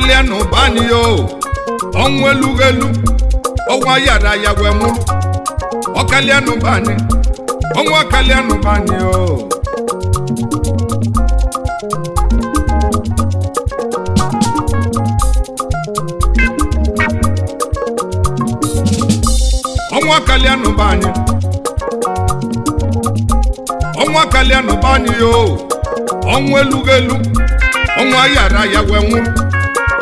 karịa n'ụbani o ọnwụ elughị elu ọnwa yara ya wee mụrụ ọkalịa n'ụbani ọnwa kalịa n'ụbani o ọnwa bani! n'ụbani ọnwa kalịa n'ụbani o ọnwụ elughị elu ọnwa yara ya wee nwụrụ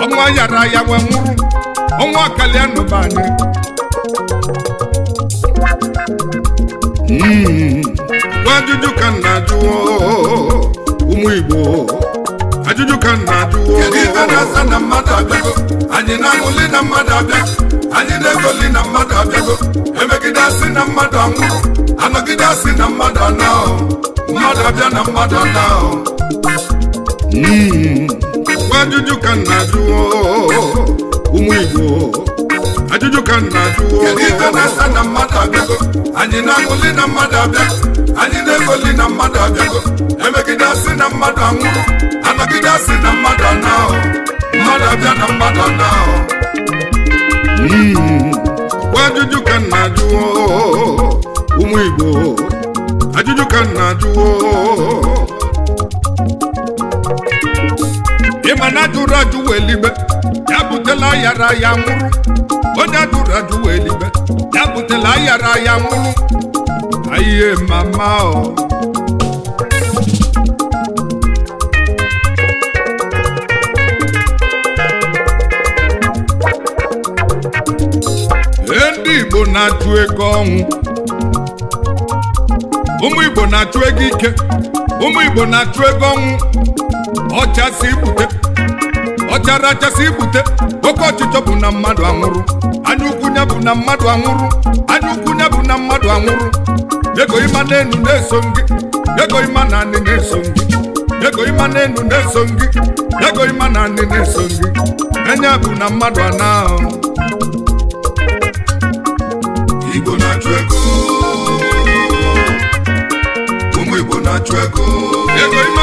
ọnwa yara ya wee nwụrụ ọnwa kalia n'ụba anyị gwa hmm. ajụjụ ka na ajụ ụmụ Igbo ajụjụ ka nna ajụ anyị na amụli na mmadụ abịa anyị na-egoli na mmadụ abịago emegide asị na mmadụ anwụrụ anọgide asị na mmadụ anọ mmadụ abịa na mmadụ anọ na-ajụwo ụmụ Igbo ajụjụ ka m na-ajụwo anyị na-agụli na mmadụ abịa anyị na-egoli na mmadụ abịago emegide asị na mmadụ anwụrụ anagide asị na mmadụ anahụ mmadụ abịa na mmadụ anahụ hmm. bụ ajụjụ ka m na-ajụwo ụmụ Igbo ajụjụ ka m na-ajụwo ịma na adụrụ ajụ wee ligbe ya butela ayara ya nwụrụ onye ajụrụ ajụ wee ligbe ya butela ayara ya nwụrụ ayiye mama o ndị igbo na atụ ego ọnwụ ụmụ igbo na atụ ego ike ụmụ igbo na atụ ego ọnwụ ọchasị ibute ọchara achasị ibute oke ọchịchọ bụ na mmadụ anwụrụ anya ukwu ya bụ na mmadụ anwụrụ anya ukwu ya bụ na mmadụ anwụrụ ego ịma enu na-eso gị ego ịma na anị na-eso gị ego ịma enu na-eso gị ego ịma na anị na-eso gị enye bụ na mmadụ ana Igbo na-achụ ego ụmụ Igbo na-achụ ego ego ịma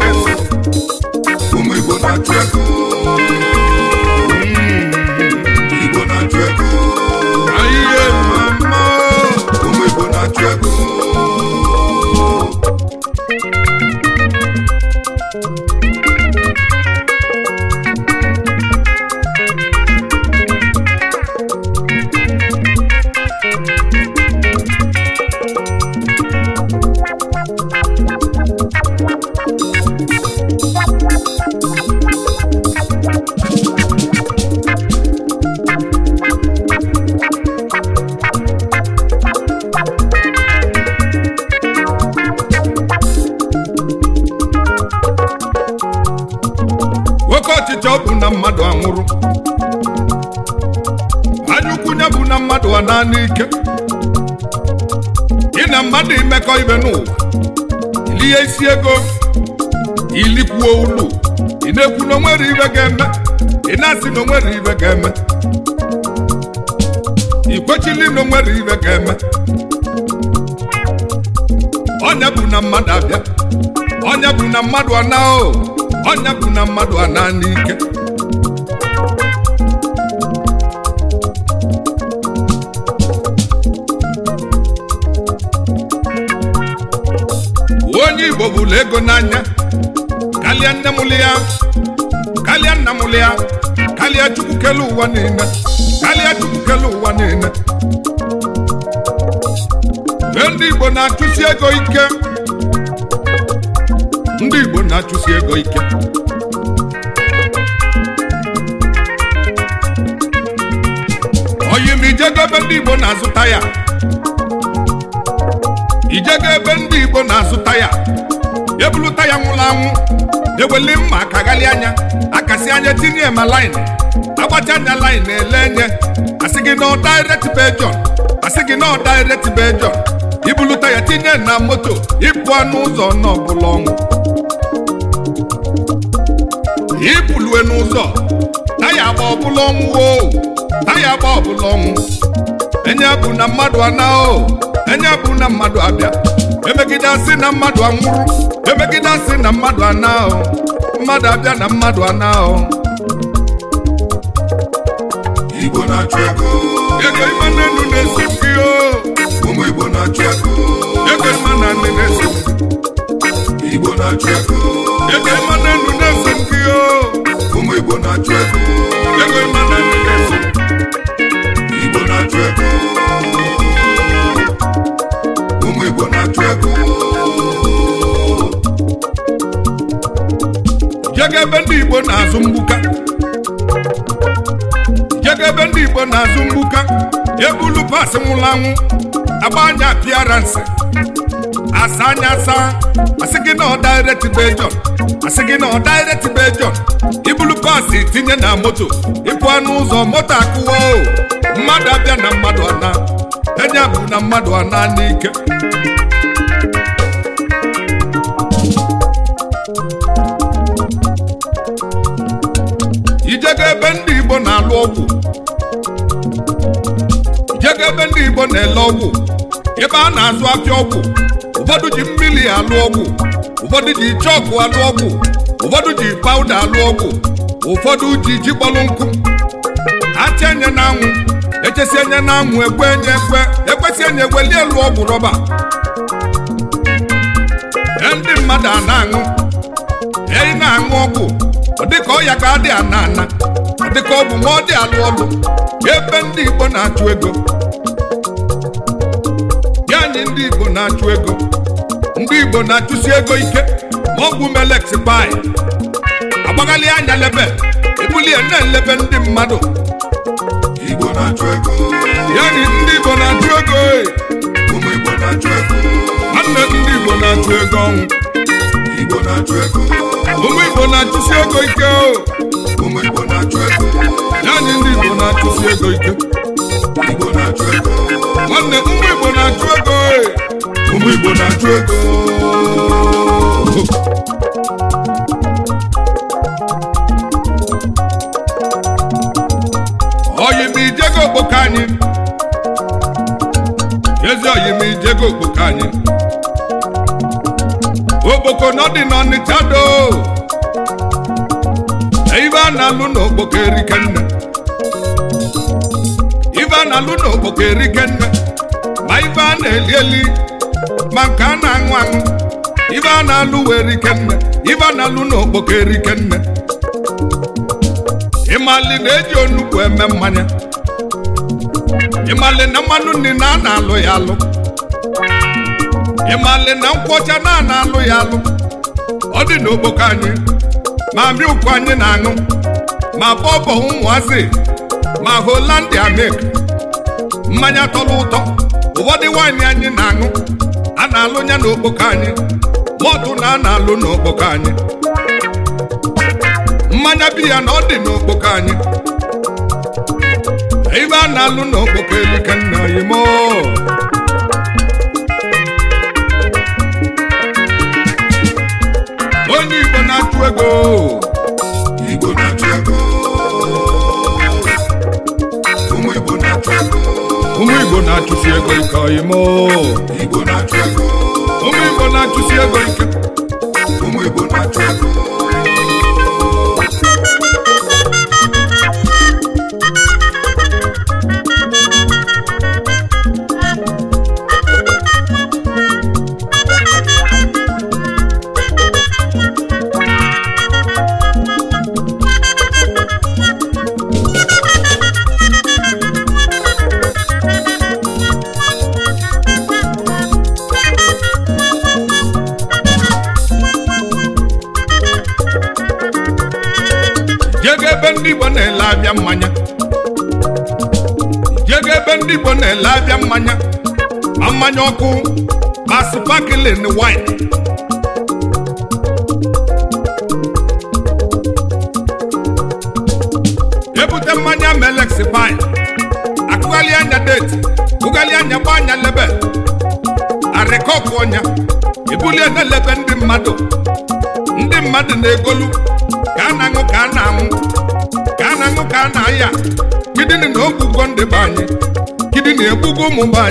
naanị ike ị na mmadụ imekọ ibe n'ụwa ili ya isi ego ilikwuo ụlọ ị na-ekwu na onwere ibe ga-eme ị na-asị na onwere ibe ga-eme ị kwechili na onwere ibe ga-eme onye bụ na mmadụ abịa onye bụ na mmadụ ana onye bụ na mmadụ ana n'ike igbo bụrụ ego n'anya kalịa nne mụlụ ya kalịa nna mụlụ ya kalịa chukwu kele ụwa niile kalịa chukwu kele ụwa niile mgbe ndị igbo na-achụsi ego ike ndị igbo na-achụsi ego ike oyim ijego ebe ndị igbo na-azụta ya ijego ebe ndị igbo na-azụta ya ebulụta ya nwụrụ anwụ eweli mma ka ghalị anya akasi anya tinye ma lain agbacha anya lain ele enye asị gị na direct bejọn asị gị na direct bejọn ibulụta ya tinye na moto ịpụ n'ụzọ n'ọbụla ọnwụ ibulue n'ụzọ taya agba ọbụla ọnwụ o taya agba ọbụla ọnwụ enye bụ na mmadụ ana o enye bụ na mmadụ abịa emegide asị na mmadụ anwụrụ emegide asị na mmadụ anaghọ mmadụ abịa na mmadụ anaghọ Igbo na-achụ ego ego na enu na-esi m ụmụ Igbo na-achụ ego ego na nne na-esi Igbo na-achụ ego ego na esi m ụmụ Igbo na-achụ ego ego ndị Igbo na-azụ mgbuka jedebe ndị Igbo na-azụ mgbuka ebulu pas nwụrụ anwụ agba anya apịaransị asa anya asa asị gị na ọ direct asị gị na ọ direct ibulu pas tinye na moto ịpụ anụ ụzọ moto akụwa o mmadụ abịa na mmadụ ana enye bụ na mmadụ ana n'ike ga ebe ndị Igbo na-alụ ọgwụ ebe ndị Igbo na-ele ọgwụ ebe a na-azụ afịa ọgwụ ụfọdụ ji mmiri alụ ọgwụ ụfọdụ ji chọkụ alụ ọgwụ ụfọdụ ji pawuda alụ ọgwụ ụfọdụ ji ji kpọrọ nkụ achị enye n'anwụ echesi enye ekwe enye ekwe ekwesị enye egweli elu ọgwụ rọba e ndị mmadụ a na-aṅụ eyi na-aṅụ ọgwụ ọ dị ọ ọya ka dị ana ana ọ ka ọ bụ ma ọ dị alụ ọlụ ebe ndị Igbo na-achụ ego ya anyị ndị Igbo na-achụ ego ndị Igbo na-achụsi ego ike ma ọ bụ melex pai agbaghalị anya lebe ebulie na-elebe ndị mmadụ Igbo na-achụ ego ya anyị ndị Igbo na-achụ ego nwanne ndị Igbo na-achụ ego ọnwụ ụmụ igbo na-achụsi ego ike naanị ndị igbo na-achụsi ego ike nwanne ndị igbo na-achụ ego ụmụ igbo na-achụ ego oyimijego okpoko anyị Oko no di no ni chado Ivan aluno bokeri kenne Ivan aluno bokeri kenne Ma Ivan elieli Mankana ngwang Ivan aluweri kenne Ivan aluno bokeri kenne Imali dejo nukwe memanya Imali namanu ni nana loyalo Imali ịmali na nkwọcha na alụ ya alụ ọ dị n'okpoko anyị ma mmiri ụkwụ anyị na-aṅụ ma bọbọ ụmụazị ma holandia mek mmanya tọrọ ụtọ ụfọdụ waanyị anyị na-aṅụ a na-alụ ya n'okpoko anyị mọdụ na a na-alụ n'okpoko anyị mmanya biya na ọ dị n'okpoko anyị ibe a na-alụ n'okpoko elu ka nna ụmụ Igbo na-achụ agụ ụmụ Igbo na-achụ agụ ụmụ Igbo na-achụsi ego ike ọyịmụ Igbo na-achụ ụmụ Igbo na-achụsi ego ike ụmụ Igbo na-achụ mmanya jega ebe ndị Igbo na-ele abịa mmanya ma mmanya ọkụ ma sparkling wine ebute mmanya melex pine akụghalị anya deti bụghalị anya gba anya lebe arịkọkụ ọnya ebulie na-elebe ndị mmadụ ndị mmadụ na-egolu ka a na-aṅụ ka a na-aṅụ na aṅụ a na-aya kidini na ogugo ndị be kidini ụmụ be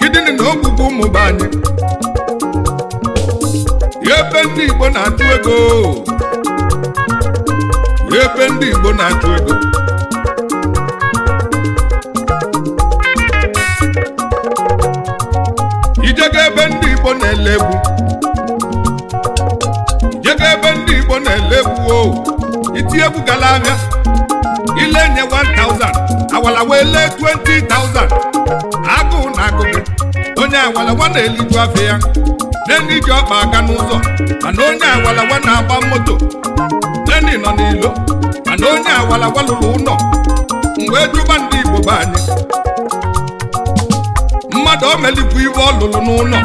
kidini na ogugo ụmụ be anyị ebe ndị Igbo na-achụ ego ebe ndị Igbo na-achụ ego ijega ebe ndị Igbo na elebu egwu ijega ebe ndị Igbo na elebu egwu o oh. iti gala ilenye thousand awalawa ele thousand agụụ na agụ onye awalawa na-eliju afọ ya neni ji ọkpa aga n'ụzọ mana onye awalawa na-agba moto neni nọ n'ilo mana onye awalawa lụrụ ụlọ mgbe jụba ndị igbo be anyị mmadụ o melikwu iwe ọ lụrụ n'ụlọ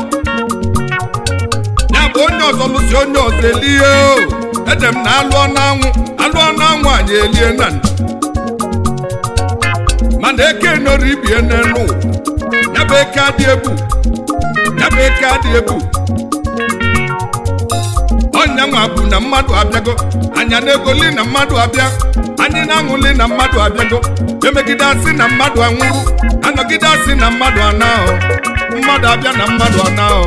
ya bụ onye ọzọ lụsi onye ọzọ elie o ede m na alụọ n'anwụ alụọ n'anwụ anyị elie na ndụ mana eke nọrọ ibie n'elu n'ebe eke adị ebu n'ebe eke adị ebu ọnyanwa abụ na mmadụ abịago anya na-egoli na mmadụ abịa anyị na-aṅụli na mmadụ abịago emegide asị na mmadụ anwụrụ anọgide asị na mmadụ anahụ mmadụ abịa na mmadụ anahụ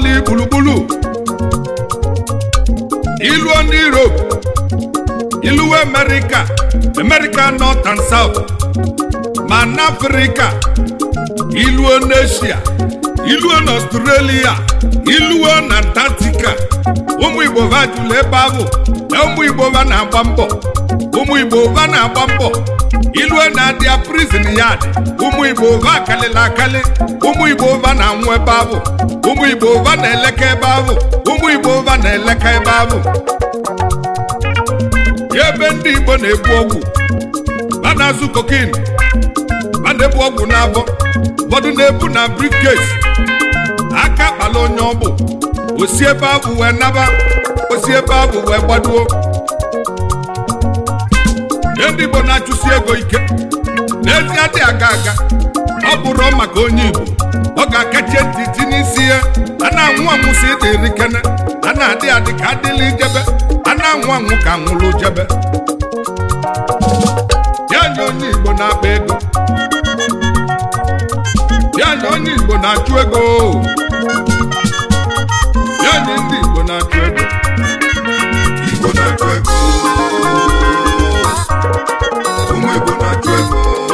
ọlị gburugburu ilu ndị Europe ilu America America North and South ma na Afrịka iluo n'Asia iluo na Australia iluo na Antarctica ụmụ Igbo va jụrụ ebe ahụ na ụmụ Igbo va na-agba mbọ ụmụ Igbo va na dia prison yard ụmụ igbo ụva akalịla akalị ụmụ igbo ụva na-anwụ ebe abụ ụmụ igbo ụva na-eleke ebe abụ ụmụ igbo ụva na-eleke ebe abụ ebe ndị igbo na-ebu ọgwụ ha na-azụ kokin ha na-ebu ọgwụ n'abọ ụfọdụ na-ebu na briefcase aka kpala onye bụ osi ebe abụ wee naba osi ebe abụ wee gbaduo ndị Igbo na-achụsi ego ike n'ezi adịghị aga aga ọ bụrụ maka onye Igbo ọ ga-akachi ntị tinye n'isi ya a na-anwụ anwụ si kene a na-adị adị ka adịla ijebe a na-anwụ anwụ ka nwụrụ jebe ya nye onye Igbo na ego ya onye Igbo na-achụ ego ya nye ndị Igbo na-achụ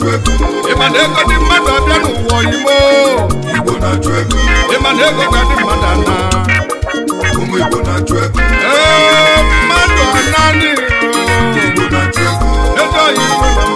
na-achụ ego ịma na ego dị mmadụ n'ụwa Igbo na-achụ ego ịma na ego ga dị mmadụ ana ụmụ Igbo na-achụ ego ee mmadụ Igbo na-achụ ego ego oyibo na